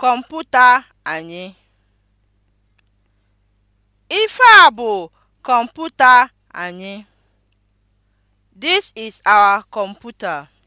kọmputa anyị. Ife a bụ kọmputa anyị. This is our computer.